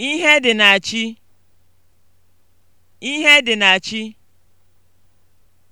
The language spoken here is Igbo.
Ihe dị na chi. Ihe dị na chi.